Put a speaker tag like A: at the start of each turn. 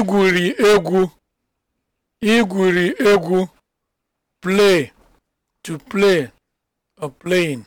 A: igwuri egwu igwuri egwu play (to play or playing)